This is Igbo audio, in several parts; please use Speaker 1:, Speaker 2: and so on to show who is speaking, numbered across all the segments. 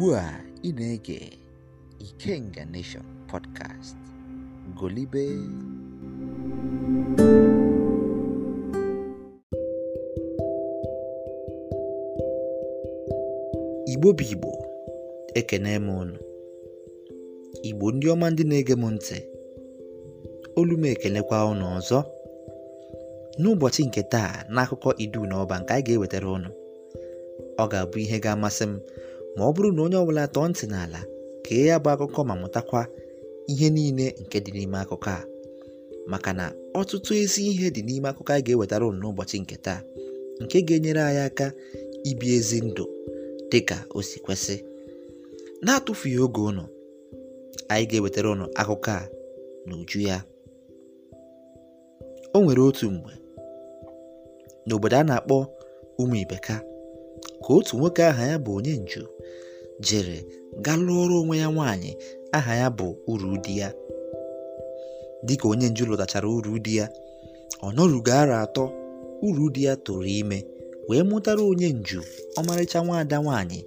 Speaker 1: ugbu a ị na-ege Ikenga Nation podcast golibe igbo bụ igbo ekene m unu igbo ndị ọma ndị na-ege m ntị olu ekelekwa unu ọzọ n'ụbọchị nke taa n'akụkọ idu na ọba nke anyị ga-ewetara unu ọ ga-abụ ihe ga-amasị m ma ọ bụrụ na onye ọbụla tọọ ntị n'ala kee ya bụ akụkọ ma mụtakwa ihe niile nke dị n'ime akụkọ a maka na ọtụtụ ezi ihe dị n'ime akụkọ anyị ga-ewetara ụnụ n'ụbọchị nke taa nke ga-enyere anyị aka ibi ezi ndụ dị ka o si kwesị na-atụfughị oge ụnụ anyị ga-ewetara ụnụ akụkọ a na uju ya o nwere otu mgbe n'obodo a na-akpọ ụmụ ibeka ka otu nwoke aha ya bụ onye nju jere gaa lụọrụ onwe ya nwaanyị aha ya bụ uru ụdị ya dịka onye nju lụtachara uru ụdị ya ọ nọrugo ara atọ uru ụdị ya tụrụ ime wee mụtara onye nju ọmarịcha nwaada nwaanyị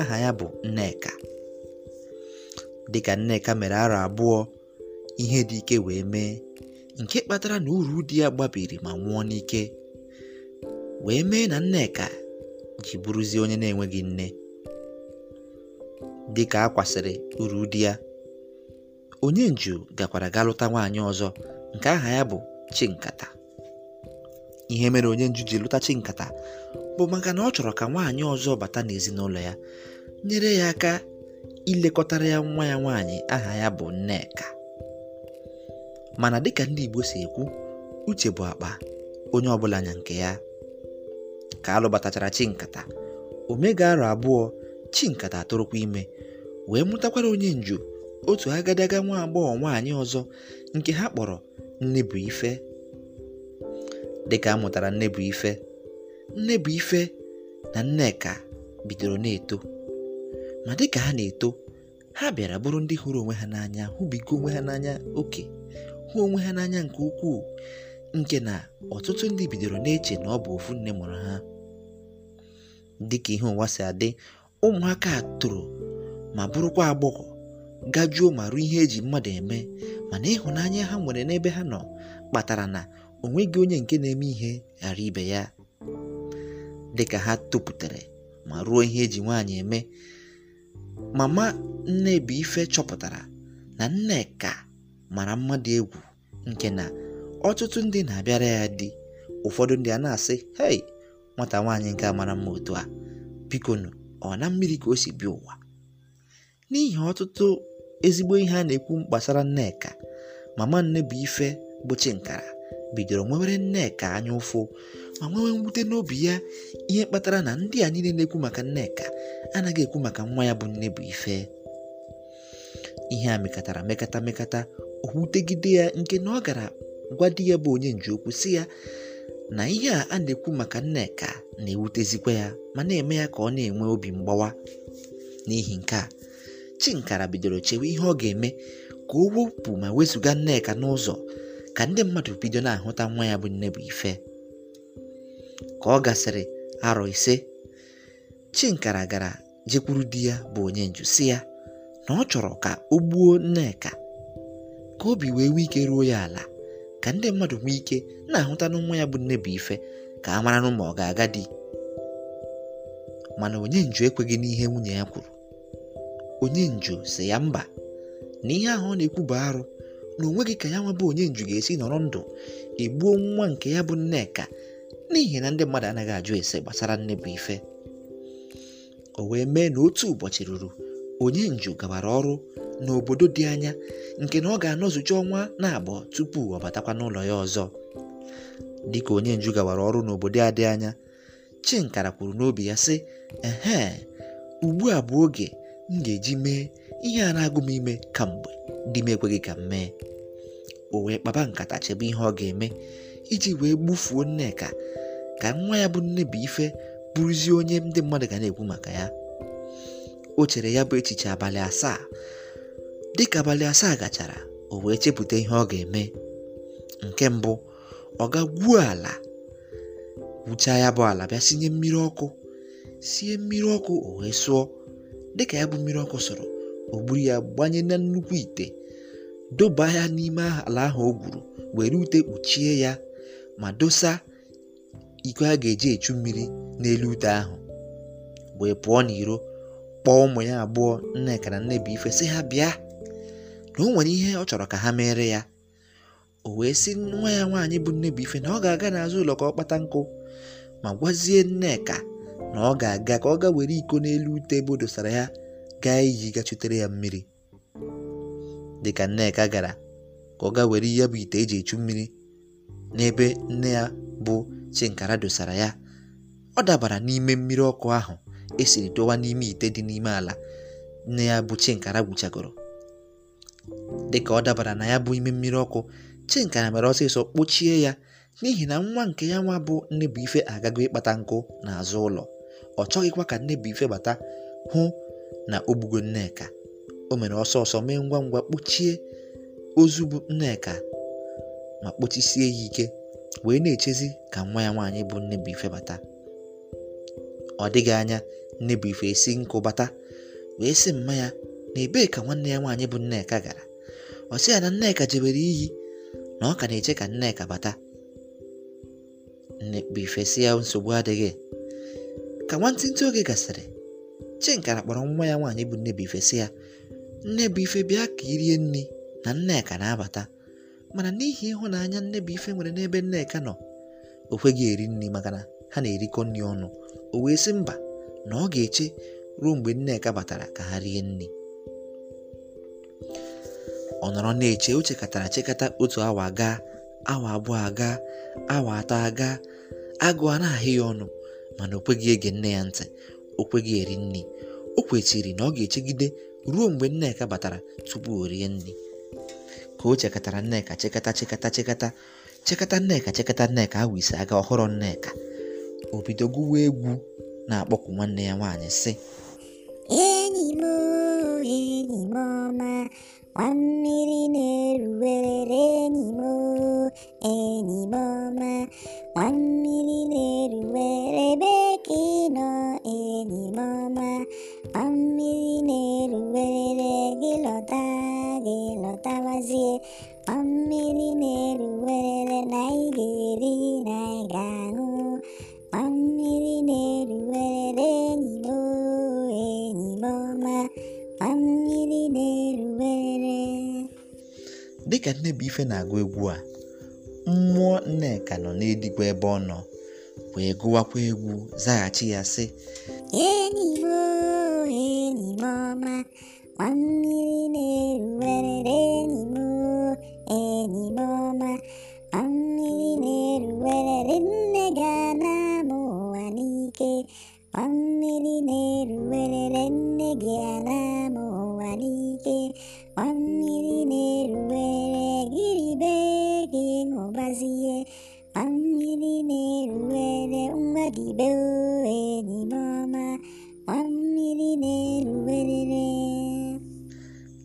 Speaker 1: aha ya bụ nneka dịka nneka mere ara abụọ ihe dị ike wee mee nke kpatara na uru ụdị ya gbabiri ma nwụọ n'ike wee mee na nneka ji bụrụzie onye na-enweghị nne Dịka ka a kwasịrị uru di ya onye nju gakwara ga lụta nwaanyị ọzọ nke aha ya bụ Chinkata ihe mere onye nju ji lụta Chinkata bụ maka na ọ chọrọ ka nwaanyị ọzọ bata n'ezinụlọ ya nyere ya aka ilekọtara ya nwa ya nwaanyị aha ya bụ Nneka mana dịka ndị Igbo si ekwu uche bụ akpa onye ọbụla nya nke ya ka alụbatachara Chinkata o mega arọ abụọ Chinkata atụrụkwa ime wee mụtakwara onye nju otu agadaga nwa agbọghọ nwaanyị ọzọ nke ha kpọrọ "nne bụ Nnebuife dịka a mụtara bụ ife" na Nneka bidoro na-eto ma dịka ha na-eto ha bịara bụrụ ndị hụrụ onwe ha n'anya hụbigo onwe ha n'anya oke hụ onwe ha n'anya nke ukwuu nke na ọtụtụ ndị bidoro na-eche na ọ bụ ofu nne mụrụ ha dịka ihe ụwa si adị ụmụaka a toro ma bụrụkwa agbọghọ gajuo ma ruo ihe eji mmadụ eme mana ịhụnanya ha nwere n'ebe ha nọ kpatara na o nweghị onye nke na-eme ihe ghara ibe ya dịka ha topụtara ma ruo ihe eji nwaanyị eme mama Ife chọpụtara na Nneka mara mmadụ egwu nke na ọtụtụ ndị na-abịara ya di ụfọdụ ndị a na-asị hei nwata nwaanyị nke mara mma otu a bikonu ọ na mmiri ka o si bịa ụwa n'ihi ọtụtụ ezigbo ihe a na-ekwu gbasara nneka mama nne bụ ife bụ nkara bidoro nwewere nneka anya ụfụ ma nwewe mwute n'obi ya ihe kpatara na ndị a niile na-ekwu maka nneka anaghị ekwu maka nwa ya bụ nne bụ ife ihe a mekatara mekata mekata o ya nke na ọ gara gwa di ya bụ onye nji okwu si ya na ihe a na-ekwu maka Nneka na-ewutezikwa ya ma na-eme ya ka ọ na-enwe obi mgbawa n'ihi nke a Chinkara bidoro chewe ihe ọ ga-eme ka o wepụ ma wezụga Nneka n'ụzọ ka ndị mmadụ bido na-ahụta nwa ya bụ nne bụ ife. ka ọ gasịrị arọ ise Chinkara gara jekwuru di ya bụ nju si ya na ọ chọrọ ka o gbuo Nneka ka obi wee nwee ike ruo ya ala ka ndị mmadụ nwee ike na-ahụta na ya bụ nne bụ ife ka a mara nụ ma ọ ga-aga di mana onye nju ekweghị n'ihe nwunye ya kwuru nju si ya mba na ihe ahụ ọ na-ekwu bụ arụ na onwe gị ka ya nwebụ onye nju ga-esi nọrọ ndụ egbuo nwa nke ya bụ Nneka n'ihi na ndị mmadụ anaghị ajụ ese gbasara nne bụ ife. o wee mee na otu ụbọchị ruru onye nju gabara ọrụ n'obodo dị anya nke na ọ ga-anọzucha ọnwa na agbọ tupu ọ batakwa n'ụlọ ya ọzọ dịka onye nju gawara ọrụ n'obodo a dị anya Chinkara kwuru n'obi ya sị ehe ugbu a bụ oge m ga-eji mee ihe a na-agụ m ime ka mgbe dị m ekweghị ka m mee o wee kpaba nkata chebe ihe ọ ga-eme iji wee gbufuo Nneka ka nwa ya bụ ife bụrụzie onye ndị mmadụ ga na-ekwu maka ya o chere ya bụ echiche abalị asaa dịka abalị asaa gachara o wee chepụta ihe ọ ga-eme nke mbụ ọ ga gwuo ala gwuchaa ya bụ ala bịa sinye mmiri ọkụ sie mmiri ọkụ o wee sụọ dịka ya bụ mmiri ọkụ sọrọ o gburu ya gbanye na nnukwu ite doba ya n'ime ala ahụ o gwuru were ute kpuchie ya ma dosa iko a ga-eji echu mmiri n'elu ute ahụ wee pụọ n'iro kpọọ ụmụ ya abụọ nneka na ife sị ha bịa na o nwere ihe ọ chọrọ ka ha mere ya o wee sị nwa ya nwaanyị bụ nne bụ ife na ọ ga-aga n'azụ ụlọ ka ọ kpata nkụ ma gwazie Nneka na ọ ga-aga ka ọ ga were iko n'elu ute ebe o dosara ya gaa iji chutere ya mmiri dịka Nneka gara ka ọ ga were ya bụ ite eji echu mmiri n'ebe nne ya bụ Chinkara dosara ya ọ dabara n'ime mmiri ọkụ ahụ esiri dowa n'ime ite dị n'ime ala nne ya bụ Chinkara gwuchagoro dịka ọ dabara na ya bụ ime mmiri ọkụ Chinka na mere ọsịsọ kpochie ya n'ihi na nwa nke ya nwa bụ ife agago ịkpata nkụ n'azụ ụlọ ọ chọghịkwa ka nne ife bata hụ na o gbugo Nneka o mere ọsọ ọsọ mee ngwa ngwa kpochie ozu bụ Nneka ma kpochisie ya ike wee na-echezi ka nwa ya nwaanyị bụ ife bata ọ dịghị anya ife esi nkụ bata wee sị mma ya na ebee ka nwanne ya nwaanyị bụ Nneka gara ọ sị ya na Nneka jebere iyi na ọ ka na-eche ka Nneka bata nnekpu ife si ya nsogbu adịghị ka nwantịntị oge gasịrị Chinkara kpọrọ nwa ya nwaanyị bụ Nnebuife si ya Nnebuife bịa ka irie nri na Nneka na-abata mana n'ihi ịhụnanya bụife nwere n'ebe Nneka nọ o kweghị eri nri maka na ha na-erikọ nri ọnụ o wee sị mba na ọ ga-eche ruo mgbe Nneka batara ka ha rie nri ọ nọrọ na-eche o chekatara chekata otu awa aga awa abụọ aga awa atọ aga agụọ a na-ahị ya ọnụ mana o kweghị ege nne ya ntị o kweghị eri nri o kwechiri na ọ ga-echegide ruo mgbe nneka batara tupu o rie nri ka o chekatara nneka chekata chekata chekata chekata nneka chekata nneka ahụ isi aga ọhụrụ nneka o bido gụwa egwu na-akpọku nwanne ya nwaanyị sị
Speaker 2: enyi m ọma nwammiri na-eruwere enyimo enyimo ma nwammiri na-eruwere ebe ka ị nọ enyimo ma mmiri na-eruwere gị lọta gị lọtawazie nwammiri na-eruwere na ị dịka
Speaker 1: ife na-agụ egwu a mmụọ Nneka nọ n'edigwe ebe ọ nọ wee gụwakwa egwu zaghachi ya sị enyi
Speaker 2: m enyi m ọma ma mmiri na-eruwerere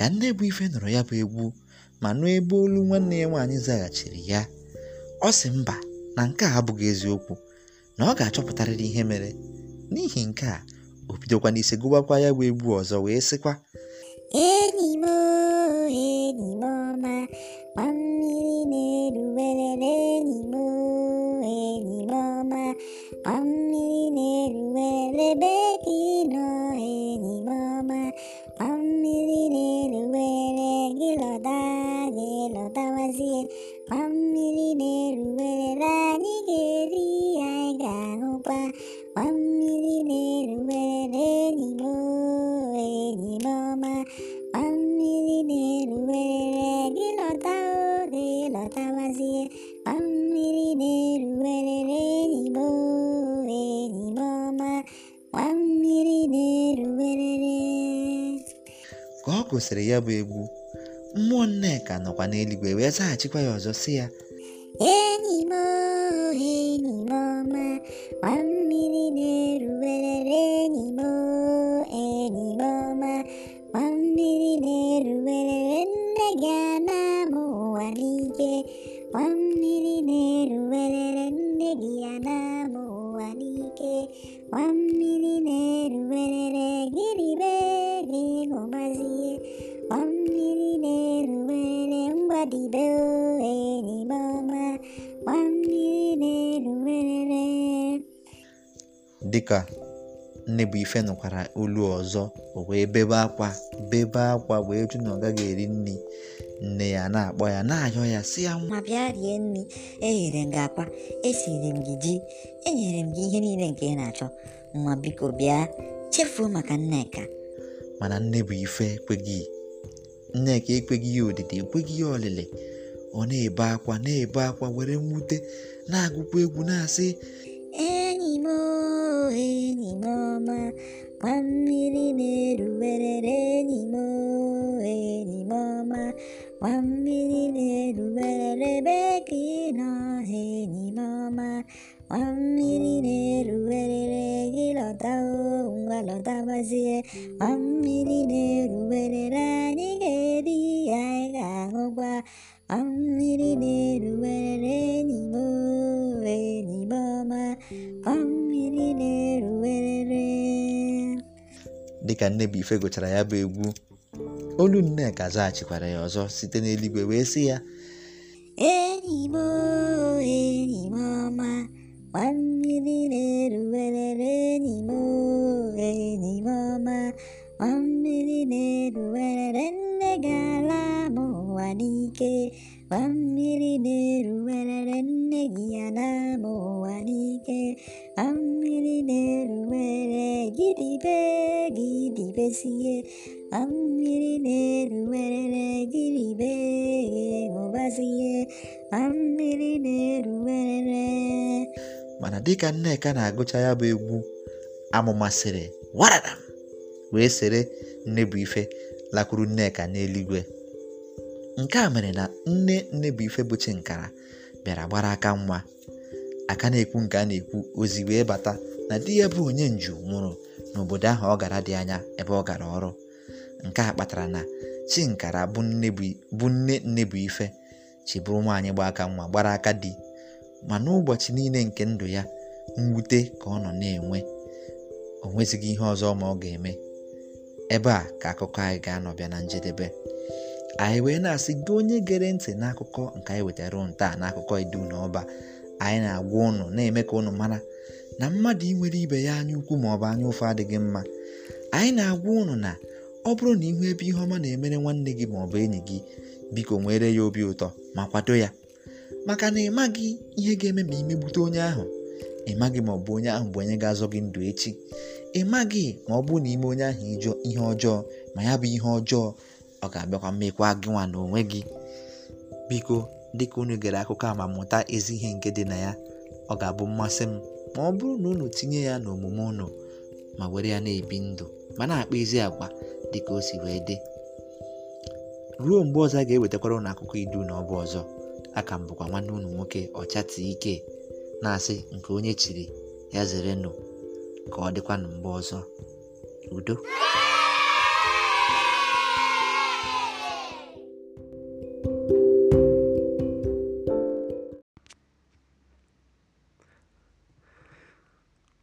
Speaker 2: ka ife nụrụ ya bụ egwu ma nụ ebe
Speaker 1: olu nwanne ya nwaanyị zaghachiri ya ọ sị mba na nke a abụghị eziokwu na ọ ga-achọpụtarịrị ihe mere n'ihi nke a o bidokwa n'ise gụbakwa ya bụ egwu ọzọ wee sịkwa gosiri ya bụ egwu mmụọ nneka nọkwa n'eluigwe wee zaghachikwa ya ọzọ sị ya dịka nne ife nọkwara olu ọzọ o wee bebe akwa bebe akwa wee jụ na ọ gaghị eri nri nne ya na-akpọ ya
Speaker 2: na-ayọ ya si ya nwa bịa rie nri eghere m gị akwa esiri m gị ji enyere m gị ihe niile nke ị na-achọ nwa biko bịa chefuo maka Nneka
Speaker 1: mana nne ife ekweghị Nneka ekweghị ya odidi ekweghị ya ọlịlị ọ na-ebe akwa na-ebe akwa were mwute na-agụkwa egwu na-asị
Speaker 2: enyi m ọma, enyimọma kwammiri na-eruwerre enyi ọma, enyimọma kwammiri na-eruwerre be ga ị nọ ha enyimọma kwammiri na-eruwerrị gị lọtngwa lọtabazie kwammiri na-eruwerere anyị ga-eri hi anyị ga-ahụ gwa kwammiri na-eruwere
Speaker 1: ka ife gụchara ya bụ egwu olu Nneka zaghachikwara ya ọzọ site n'eluigwe wee sị ya
Speaker 2: enyi m enyi na-eruwerere enyi m enyi na-eruwerere nne ga-ala m ụwa n'ike gba mmiri na-eruwerere nne gị ya na ụwa n'ike a mmiri na-eruwere gidibe gidibezie a mmiri na-eruwere gidibe a mmiri na-eruwere
Speaker 1: mana dịka Nneka na-agụcha ya bụ egwu amụmasịrị warada wee sere ife lakwuru Nneka n'eluigwe nke a mere na nne ife bụ Chinkara bịara gbara aka nwa aka na-ekwu nke a na-ekwu ozi wee bata na di ya bụ onye nju nwụrụ n'obodo ahụ ọ gara dị anya ebe ọ gara ọrụ nke a kpatara na chinkara bụ nne bụ ife bụrụ nwaanyị gba aka nwa gbara aka di ma n'ụbọchị niile nke ndụ ya mwute ka ọ nọ na-enwe o nwezighị ihe ọzọ ma ọ ga-eme ebe a ka akụkọ anyị ga bịa na njedebe anyị wee na-asị gị onye gere ntị n'akụkọ nke anyị wetara taa n'akụkọ idu na Ọba anyị na-agwa ụnụ na-eme ka ụnụ mara na mmadụ inwere ibe ya anya ukwu ma ọ bụ anya ụfụ adịghị mma anyị na-agwa ụnụ na ọ bụrụ na ihu ebe ihe ọma na-emere nwanne gị ma ọ bụ enyi gị biko nwere ya obi ụtọ ma kwado ya maka na ịma gị ihe ga-eme ma imegbute onye ahụ ị maghị ma ọ bụ onye ahụ bụ onye ga-azọ gị ndụ echi ị maghị ma ọ bụrụ na ime onye ahụ ijọ ihe ọjọọ ma ya bụ ihe ọjọọ ọ ga-abịakwa mmekwa gị nwa na onwe gị biko dịka unu gere akụkọ a ma mụta ezi ihe nke dị na ya ọ ga-abụ mmasị m ma ọ bụrụ na unu tinye ya n'omume unu ma were ya na-ebi ndụ ma na-akpa ezi agwa dịka o si wee dị ruo mgbe ọzọ a ga-ewetakwara ụnụ akụkọ idu na ọbụ ọzọ a m bụkwa nwanne ụnụ nwoke ọchati ike na-asị nke onye chiri ya zere nụ ka ọ dịkwa na mgbe ọzọ udo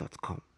Speaker 3: gmail.com.